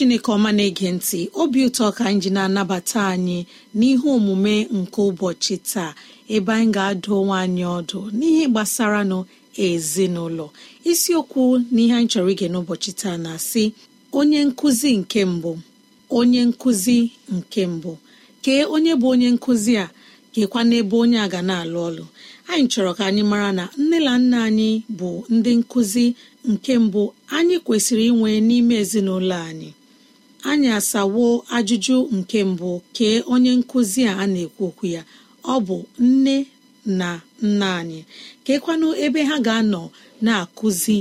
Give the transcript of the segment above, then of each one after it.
chineke ọma na-ege ntị obi ụtọ ka anyị ji na-anabata anyị n'ihe omume nke ụbọchị taa ebe anyị ga-adụ onwe anyị ọdụ n'ihe gbasara nụ ezinụlọ isiokwu n'ihe anyị chọrọ ige n'ụbọchị taa na-asị onye nkụzi nke mbụ onye nkụzi nke mbụ kee onye bụ onye nkụzi a kekwa n'ebe onye a ga na-alụ ọlụ anyị chọrọ ka anyị mara na nne na nna anyị bụ ndị nkụzi nke mbụ anyị kwesịrị inwe n'ime ezinụlọ anyị anyị asawo ajụjụ nke mbụ kee onye nkụzi a na-ekwu okwu ya ọ bụ nne na nna anyị keekwanụ ebe ha ga-anọ na-akụzi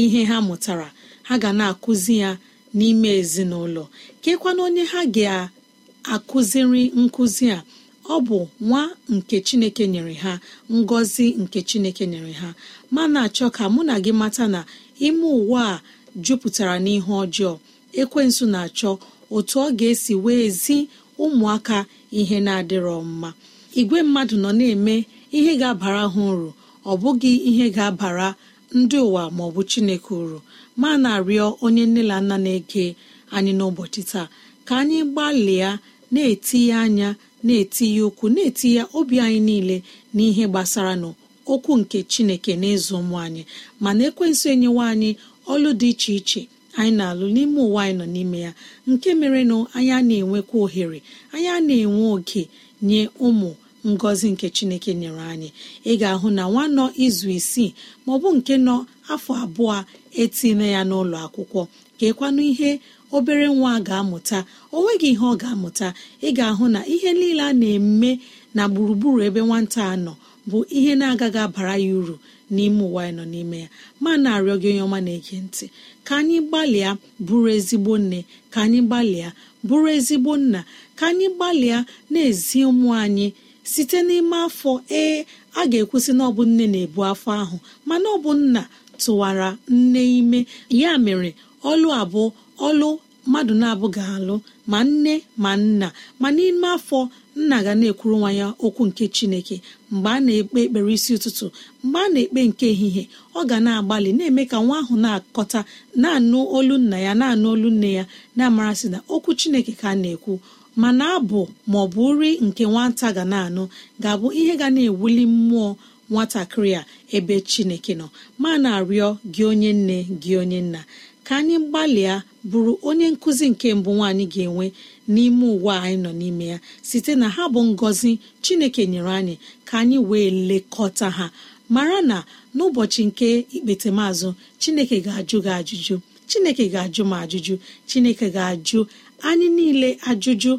ihe ha mụtara ha ga na-akụzi ya n'ime ezinụlọ keekwanụ onye ha ga-akụziri nkụzi a ọ bụ nwa nke chineke nyere ha ngọzi nke chineke nyere ha mana achọ ka mụ na gị mata na ime ụwa a jupụtara n'ihe ọjọọ ekwensụ na-achọ otu ọ ga-esi wee zi ụmụaka ihe na-adịrọ mma igwe mmadụ nọ na-eme ihe ga-abara ha uru ọ bụghị ihe ga-abara ndị ụwa ma ọ bụ chineke uru ma na-arịọ onye nne na nna na-ege anyị n'ụbọchị taa ka anyị gbalịa na-etinye anya na-etinye ụkwụ na-etinye obi anyị niile n'ihe gbasara n'okwu nke chineke na ụmụ anyị mana ekwensu enyewa anyị ọlụ dị iche iche anyị na-alụ n'ime ụwa anyị nọ n'ime ya nke mere na anyị a na-enwekwa ohere anyị a na-enwe oke nye ụmụ ngọzi nke chineke nyere anyị ị ga-ahụ na nwa nọ izu isii maọbụ nke nọ afọ abụọ etinye ya n'ụlọ akwụkwọ ka ihe obere nwa ga-amụta o nweghị ihe ọ ga-amụta ị ga-ahụ na ihe niile a na-eme na gburugburu ebe nwata a nọ bụ ihe na-agaghị abara ya uru n'ime ụwa anyị nọ n'ime ya ma na-arịọ gị onye ọma na-ege ntị ka anyị gbalịa bụrụ ezigbo nne ka anyị gbalịa bụrụ ezigbo nna ka anyị gbalịa na-ezi ụmụ anyị site n'ime afọ ee a ga-ekwusị na ọ nne na-ebu afọ ahụ mana ọ bụ nna tụwara nne ime ya mere ọlụ abụọ ọlụ mmadụ na-abụ ga-alụ ma nne ma nna ma n'ime afọ nna ga na-ekwuru nwa ya okwu nke chineke mgbe a na-ekpe ekpere isi ụtụtụ mgbe a na-ekpe nke ehihie ọ ga na-agbalị na-eme ka nwa ahụ na-akọta na-anụ olu nna ya na-anụ olu nne ya na-amarasị na okwu chineke ka a na-ekwu mana abụ ma ọ bụ nri nke nwata ga na-anụ ga-abụ ihe ga na-ewuli mmụọ nwatakịrị a ebe chineke nọ ma na-arịọ gị onye nne gị onye nna ka anyị gbalịa bụrụ onye nkụzi nke mbụ nwaanyị ga-enwe n'ime ụwa anyị nọ n'ime ya site na ha bụ ngọzi chineke nyere anyị ka anyị wee lekọta ha mara na n'ụbọchị nke ikpetemazụ chineke ga-ajụ gị ajụjụ chineke ga-ajụ m ajụjụ chineke ga-ajụ anyị niile ajụjụ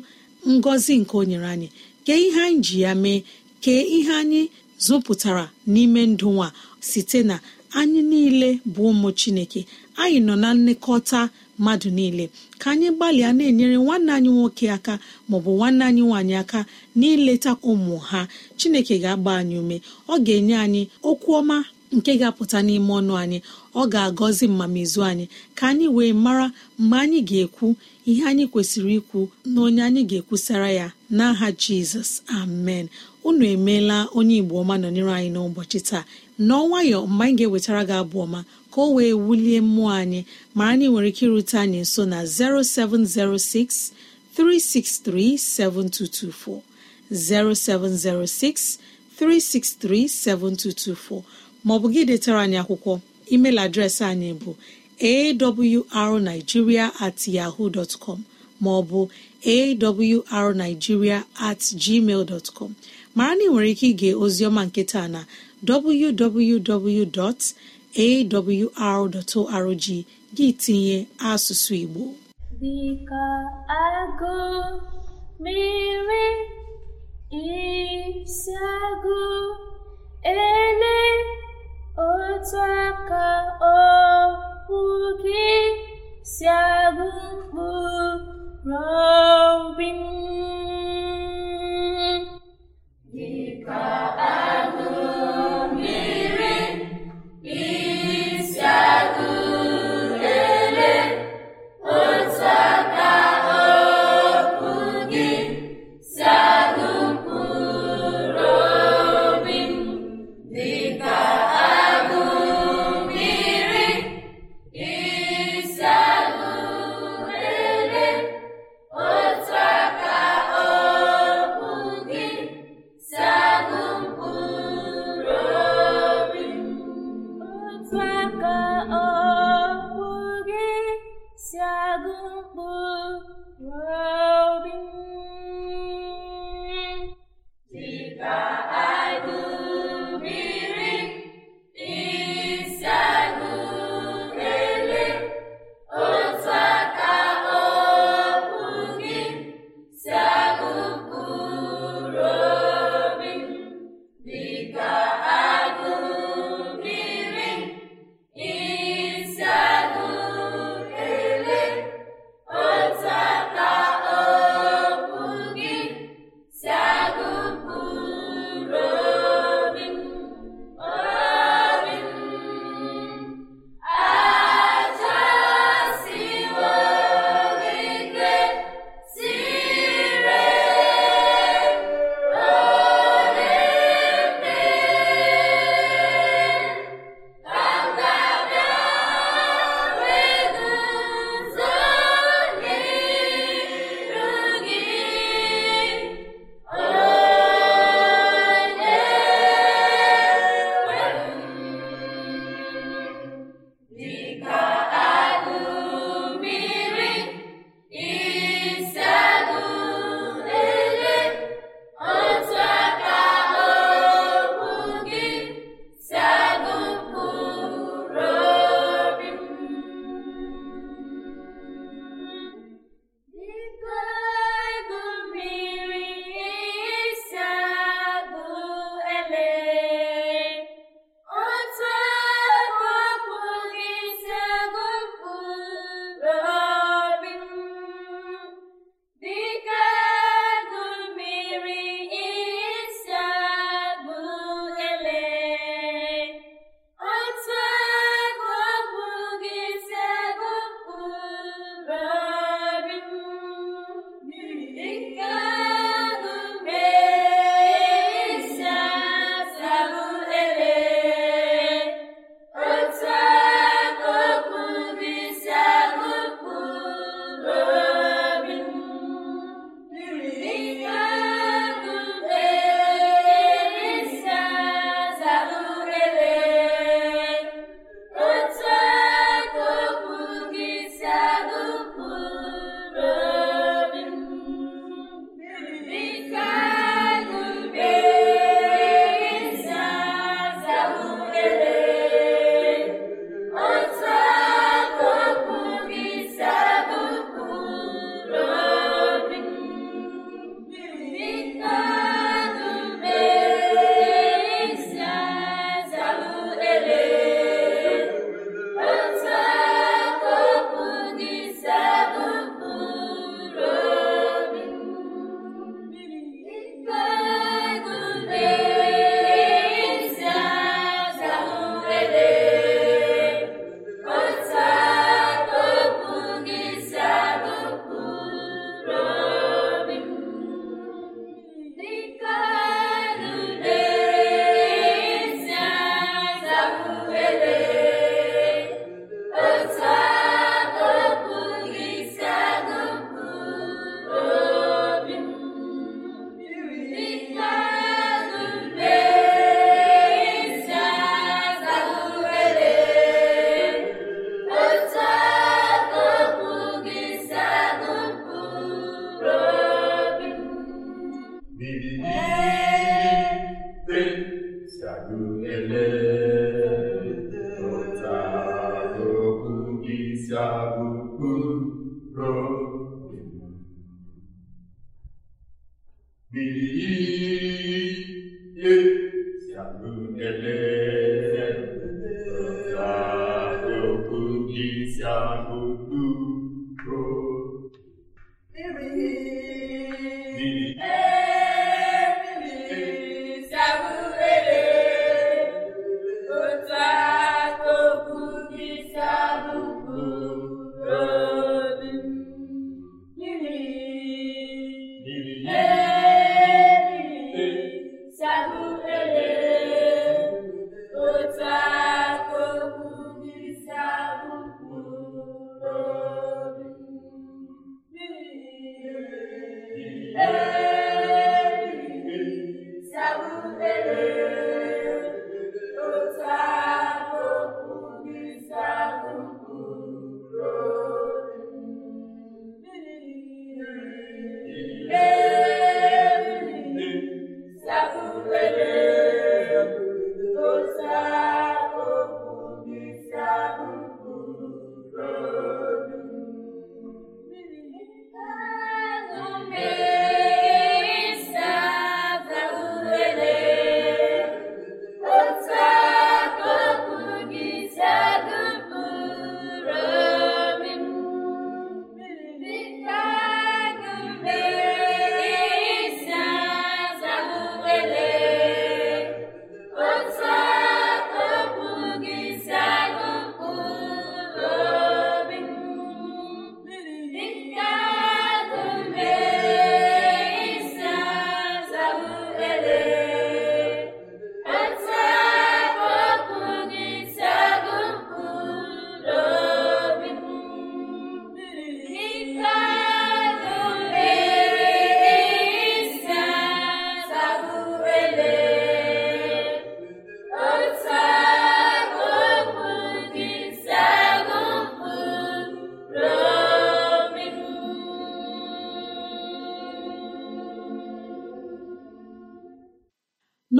ngọzi nke o nyere anyị kee ihe anyị ji ya mee kee ihe anyị zụpụtara n'ime ndụ nwa site na anyị niile bụ ụmụ chineke anyị nọ na nlekọta mmadụ niile ka anyị gbalịa na-enyere nwanne anyị nwoke aka maọbụ nwanne anyị nwaanyị aka n'ileta ụmụ ha chineke ga-agba anyị ume ọ ga-enye anyị okwu ọma nke ga-apụta n'ime ọnụ anyị ọ ga-agọzi mmamizu anyị ka anyị wee mara mgbe anyị ga-ekwu ihe anyị kwesịrị ikwu na onye anyị ga-ekwusara ya n'aha Jizọs amen unu emeela onye Igbo ọma nọnyere anyị n'ụbọchị taa n'ọnwayọ mgbe anyị ga-ewetara gị abụ ọma ka o wee wulie mmụọ anyị mara na ị nwere ike irute anyị nso na 0706 363 7224 0706 363 7224 maọbụ gị detara anyị akwụkwọ email adreesị anyị bụ arigiria at yahoo dot com maọbụ arigiria at gmail dot com mara na ị nwere ike ige ozioma nketa na www.awr.org gị tinye asụsụ Igbo dịka agụ mmiri isi agụ ele otu aka okwu gị si agụ mkpụrụ dịka agụ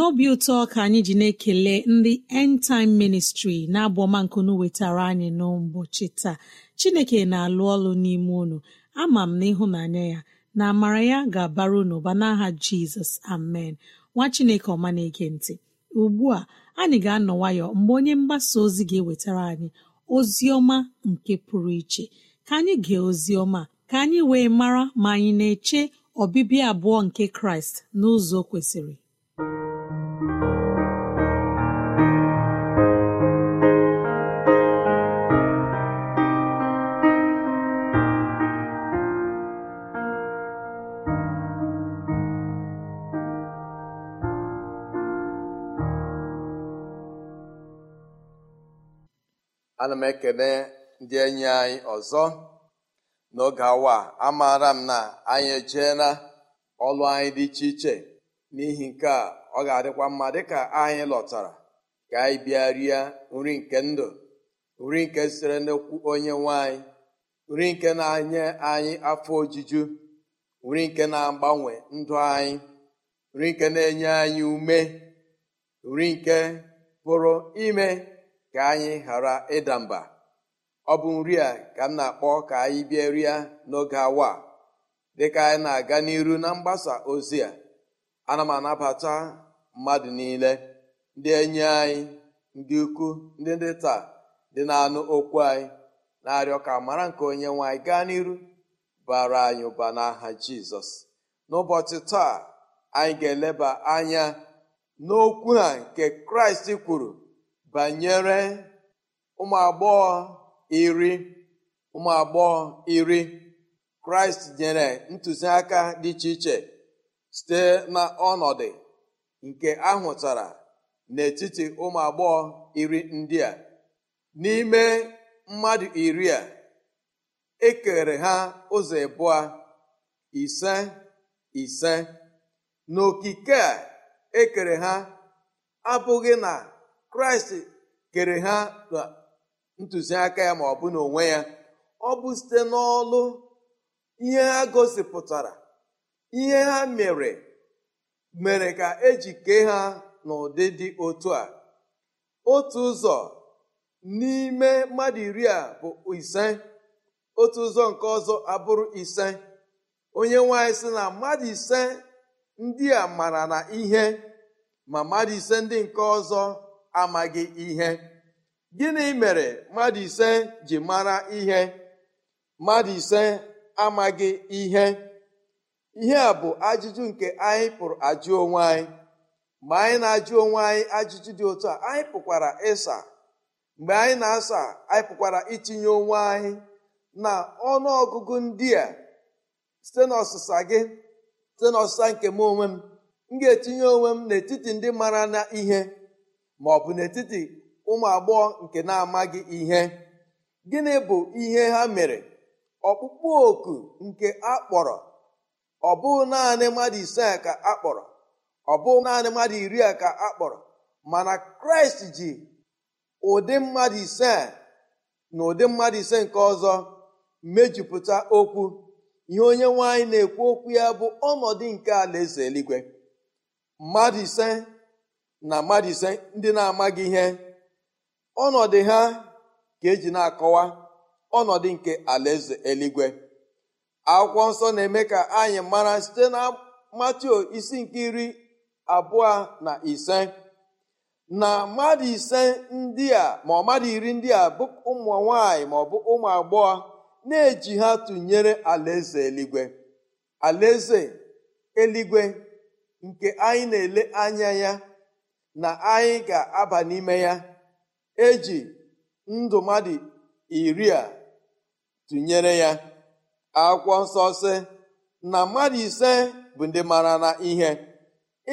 n'obi ụtọ ka anyị ji na-ekele ndị End Time Ministry na-abụ ọma nkunu wetara anyị n'ụbọchị taa Chineke na-alụ ọlụ n'ime unu ama m na ịhụnanya ya na amara ya ga-abara unu ụba n'aha Jizọs amen nwa Chineke ọma na-ege ntị ugbu a anyị ga-anọ nwayọ mgbe onye mgbasa ozi ga-ewetara anyị ozi ọma nke pụrụ iche ka anyị gee ozi ọma ka anyị wee mara ma anyị na-eche ọbịbịa abụọ nke Kraịst n'ụzọ kwesịrị ana m ekele ndị enyi anyị ọzọ n'oge awa amaara m na anyị ejeela ọlụ anyị dị iche iche n'ihi nke a ọ ga-adịkwa mma dịka anyị lọtara ka anyị bịa rie nri nke ndụ nri nke sitere n'okwu onye nwanyị nri nke na-enye anyị afọ ojuju nri nke na-agbanwe ndụ anyị nri nke na-enye anyị ume nri nke pụrụ ime ka anyị ghara ịda mba ọ bụ nri a ka m na-akpọ ka anyị bịa rịa n'oge awa dịka anyị na-aga n'iru na mgbasa ozi a ana m anabata mmadụ niile ndị enyi anyị ndị ukwu ndị ndị taa dị na-anụ okwu anyị na-arịọ ka mara nke onye nwanyị gaa n'iru bara anyị ụba n'aha jizọs n'ụbọchị taa anyị ga-eleba anya n'okwu ha nke kraịst kwuru banyere ụmụ agbọghọ iri ụmụ agbọghọ iri kraịst nyere ntụziaka dị iche iche site na nke ahụtara n'etiti ụmụ agbọghọ iri ndị a n'ime mmadụ iri a ekere ha ụzọ ịbụọ ise ise n'okike a ekere ha abụghị na kraịst kere ha ntụziaka ya ma ọ bụ n'onwe ya ọ bụ site n'ọlụ ihe ha gosipụtara ihe ha mere mere ka eji kee ha n'ụdị dị otu a otu ụzọ n'ime mmadụ iri a bụ ise otu ụzọ nke ọzọ abụrụ ise onye nwanyị sị na mmadụ ise ndị a mara na ihe ma mmadụ ise ndị nke ọzọ amaghị ihe gịnị mere mmadụ ise ji mara ihe mmadụ ise amaghị ihe ihe a bụ ajụjụ nke anyị pụrụ ajụ onwe anyị mgbe anyị na-ajụ onwe anyị ajụjụ dị otu a anyị pụkwara ịsa mgbe anyị na-asa anyị pụkwara itinye onwe anyị na ọnụ ọgụgụ ndị a site n'ọsịsa gị site n'ọsịsa nke m onwe m m ga-etinye onwe m n'etiti ndị mara na ihe ma ọ bụ n'etiti ụmụ agbọghọ nke na-amaghị ihe gịnị bụ ihe ha mere ọkpụkpụ oku nke akpọrọ ọ bụ naanị mmadụ ise ka akpọrọ ọ bụ naanị mmadụ iri a ka akpọrọ mana kraịst ji ụdị mmadụ ise na ụdị mmadụ ise nke ọzọ mejupụta okwu ihe onye nwaanyị na-ekwu okwu ya bụ ọnọdụ nke alaeze eluigwe mmadụ ise na mmadụ ndị na-amaghị ihe ọnọdụ ha ka eji na-akọwa ọnọdụ nke alaeze eluigwe akwụkwọ nsọ na-eme ka anyị mara site na matio isi nke iri abụọ na ise na mmadụ ise ndị a ma ọ mmadụ iri ndị a bụ ụmụ nwanyị ma ọ bụ ụmụ agbọghọ na-eji ha tụnyere alaeze eluigwe alaeze eluigwe nke anyị na-ele anya ya na anyị ga-aba n'ime ya eji ndụ mmadụ iri a tụnyere ya akwụkwọ nsọ na mmadụ ise bụ ndị mara na ihe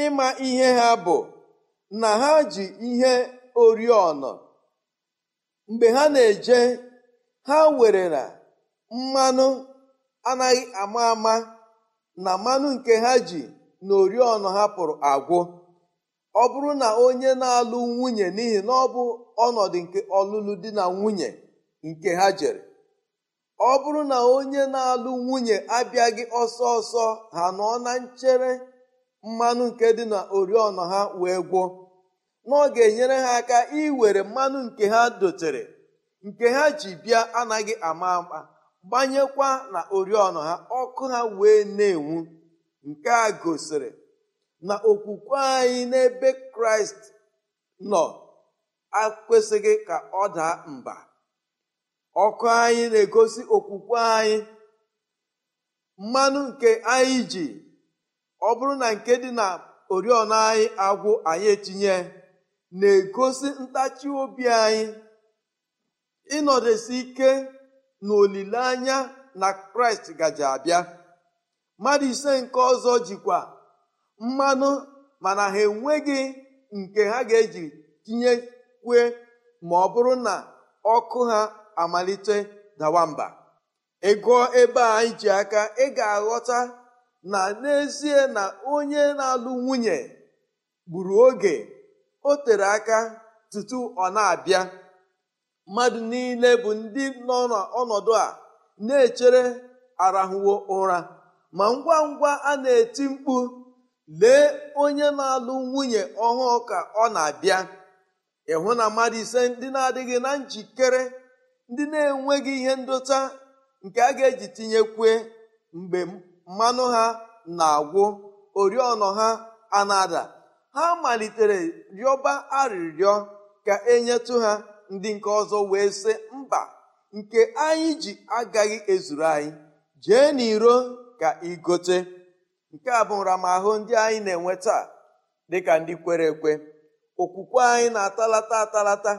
ịma ihe ha bụ na ha ji ihe oriọna mgbe ha na-eje ha were na mmanụ anaghị ama ama na mmanụ nke ha ji na oriọna ha pụrụ agwụ ọ bụrụ na onye na-alụ nwunye n'ihi na ọ bụ ọnọdụ nke ọlụlụ di na nwunye nke ha jere ọ bụrụ na onye na-alụ nwunye abịaghị ọsọ ọsọ ha nọ na nchere mmanụ nke dị na oriọna ha wee gwọ na ọ ga-enyere ha aka iwere mmanụ nke ha dotere nke ha ji bịa anaghị ama ama gbanyekwa na oriọna ha ọkụ ha wee na-enwu nke a gosiri na okwukwe anyị n'ebe kraịst nọ akwesịghị ka ọ daa mba ọkụ anyị na-egosi okwukwe anyị mmanụ nke anyị ji ọ bụrụ na nke dị na oriọna anyị agwụ anyị etinye na-egosi ntachi obi anyị ịnọdesi ike na na kraịst gaji abịa mmadụ ise nke ọzọ jikwa mmanụ mana ha enweghị nke ha ga-eji kwe ma ọ bụrụ na ọkụ ha amalite dawa mba ịgụọ ebe a anyị ji aka ị ga-aghọta na n'ezie na onye na-alụ nwunye gburu oge o tere aka tutu ọ na-abịa mmadụ niile bụ ndị nọ n'ọnọdụ a na-echere arahụwo ụra ma ngwa ngwa a na-eti mkpu lee onye na-alụ nwunye ọhụụ ka ọ na-abịa ịhụ na mmadụ ise ndị na-adịghị na njikere ndị na-enweghị ihe ndota nke a ga-eji tinyekwe mgbe mmanụ ha na-agwụ oriọna ha anada ha malitere rịọba arịrịọ ka enyetụ ha ndị nke ọzọ wee sị mba nke anyị ji agaghị ezuru anyị jee n'iro ka igote nke a bụ nramahụ ndị anyị na-enwe taa dịka ndị kwere ekwe okwukwe anyị na-atalata atalata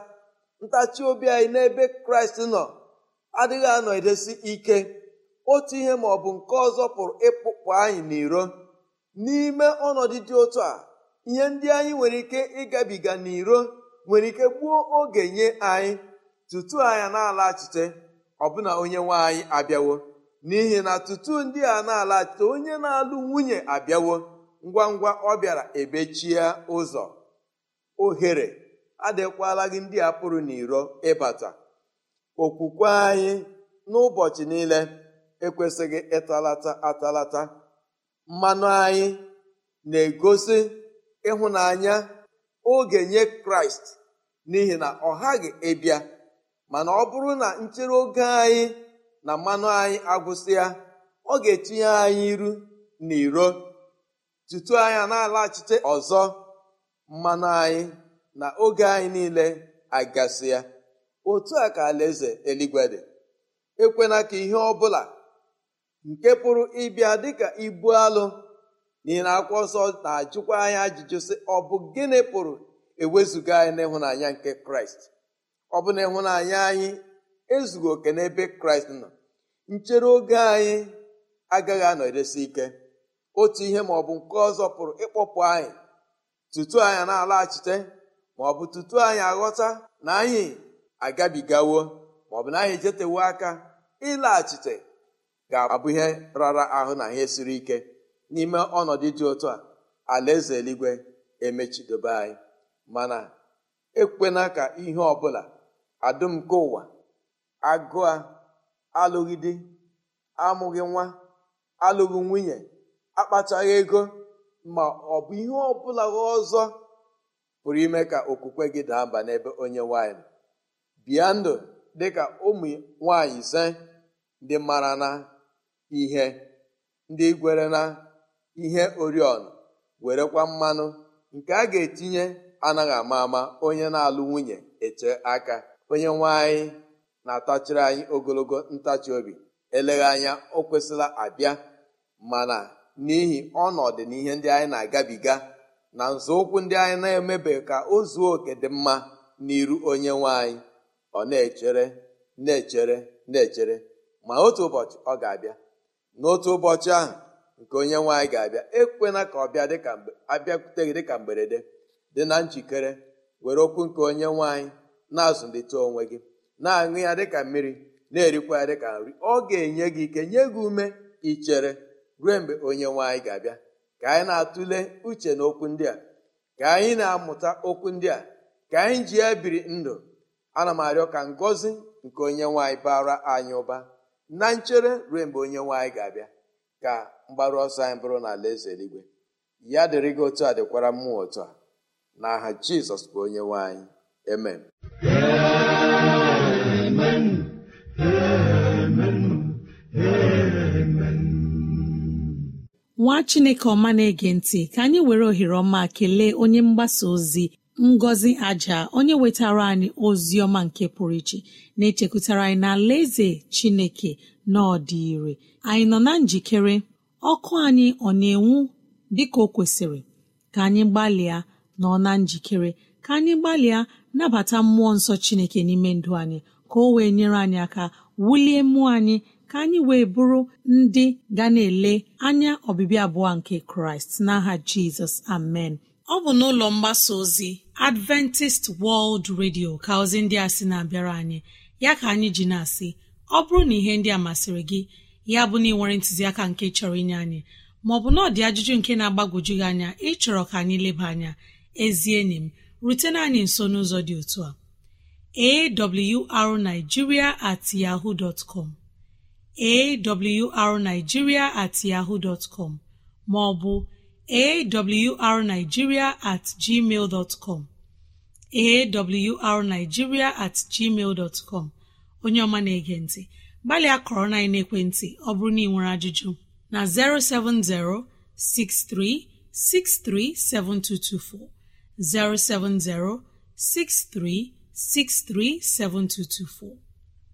ntachi obi anyị n'ebe kraịst nọ adịghị anọ edesi ike otu ihe ma ọ bụ nke ọzọ pụrụ ịpụpụ anyị n'iro n'ime ọnọdụ dị otu a ihe ndị anyị nwere ike ịgabiga n'iro nwere ike gbuo oge nye anyị tutu anya na-alaghachite ọbụna onye nwe anyị abịawo n'ihi na tutu ndị a na-alachite onye na-alụ nwunye abịawo ngwa ngwa ọ bịara ebechie ụzọ ohere adịkwala gị ndị a pụrụ n'iro ịbata okwukwe anyị n'ụbọchị niile ekwesịghị ịtalata atalata mmanụ anyị na-egosi ịhụnanya oge nye kraịst n'ihi na ọ ghaghị ịbịa mana ọ bụrụ na nchere oge anyị na mmanụ anyị agwụsịa ọ ga-etinye anyị iru na iro tutu anya na-alaghachite ọzọ mmanụ anyị na oge anyị niile agasi ya otu a ka alaeze eluigwe ekwena ka ihe ọ bụla nke pụrụ ịbịa dịka ibu alụ n'ihi na akwụkwọ nsọ na-ajụkwa anyị ajụjụ sị ọ bụ gịnị pụrụ ewezuga anyị n'ịhụnanya nke kraịst ọ bụ na ịhụnanya anyị ezughị oke n'ebe kraịst nọ nchere oge anyị agaghị anọdesi ike otu ihe ma ọ bụ nke ọzọ pụrụ ịkpọpụ anyị tutu anyị na-alaghachite ma ọ bụ tutu anyị aghọta na anyị agabigawo ma ọ bụ na anyị jetewo aka ịlaghachite ga-abụ ihe rara ahụ na ihe siri ike n'ime ọnọdụ dị otu a alaeze eluigwe emechidobe anyị mana ekwena ka ihe ọbụla nke ụwa agụa alụghị di amụghị nwa alụghị nwunye akpachaghị ego ma ọ bụ ihe ọbụla ọzọ pụrụ ime ka okwukwe gị daa mba n'ebe onye nwanyị bịa ndụ dịka ụmụ nwanyị ise ndị mara na ihe ndị gwere na ihe oriọna werekwa mmanụ nke a ga-etinye anaghị ama ama onye na-alụ nwunye eche aka onye nwanyị na-atachiri anyị ogologo ntachi obi eleghị anya o kwesịla abịa mana n'ihi ọnọdụ na ihe ndị anyị na-agabiga na nzọụkwụ ndị anyị na-emebe ka o zuo oke dị mma n'iru onye nwe anyị ọ na-echere na-echere na-echere ma otu ụbọchị ọ ga-abịa n'otu ụbọchị ahụ nke onye nwe anyị ga-abịa ekwena ka ọ bịa dịka abịakwute gị dịka mberede dị na njikere were okwu nke onye nwe anyị na-azụlite onwe gị na-aṅụ ya dịka mmiri na-erikwa ya dịka nri ọ ga-enye gị ike nye gị ume ichere ruo mgbe onye nwanyị ga-abịa ka anyị na-atụle uche na okwu ndị a ka anyị na-amụta okwu ndị a ka anyị ji ya biri ndụ ana m arịọ ka ngọzi nke onye nwaanyị bara anyị ụba na nchere ruo mgbe onye nwaanyị ga-abịa ka mgbaru ọsọ anyị bụrụ na ala eze eluigwe ya dịrị gị otu a dịkwara mmụọ otu a na aha jizọs bụ onye nwaanyị amen nwa chineke ọma na-ege ntị ka anyị were ohere ọma kelee onye mgbasa ozi ngọzi aja onye wetara anyị ozi ọma nke pụrụ iche na-echekwutara anyị na eze chineke na ọdị ire anyị nọ na njikere ọkụ anyị ọ na-enwu dịka o kwesịrị ka anyị gbalịa nọ na njikere ka anyị gbalịa nabata mmụọ nsọ chineke n'ime ndụ anyị ka o wee nyere anyị aka wulie mmụọ anyị ka anyị wee bụrụ ndị ga na-ele anya ọbịbịa abụọ nke kraịst n'aha jizọs amen ọ bụ n'ụlọ mgbasa ozi adventist world radio ka ozi ndị a sị na-abịara anyị ya ka anyị ji na-asị ọ bụrụ na ihe ndị a masịrị gị ya bụ na ịnwere ntụziaka nke chọrọ inye anyị maọbụ na ọdị ajụjụ nke na-agbagwoju gị anya ịchọrọ ka anyị leba anya ezie enyi m rutena anyị nso n'ụzọ dị otu a awrnigeria at yahoo dot com arigiria at yaho dtcom maọbụ arigiria at gmail dọtcom arigiria at gmail dọtcom onye ọma na-ege ntị gbalịa kọrọ na ekwentị ọ bụrụ na ị nwere ajụjụ na 070 6363724 070 6363724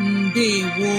Ndewo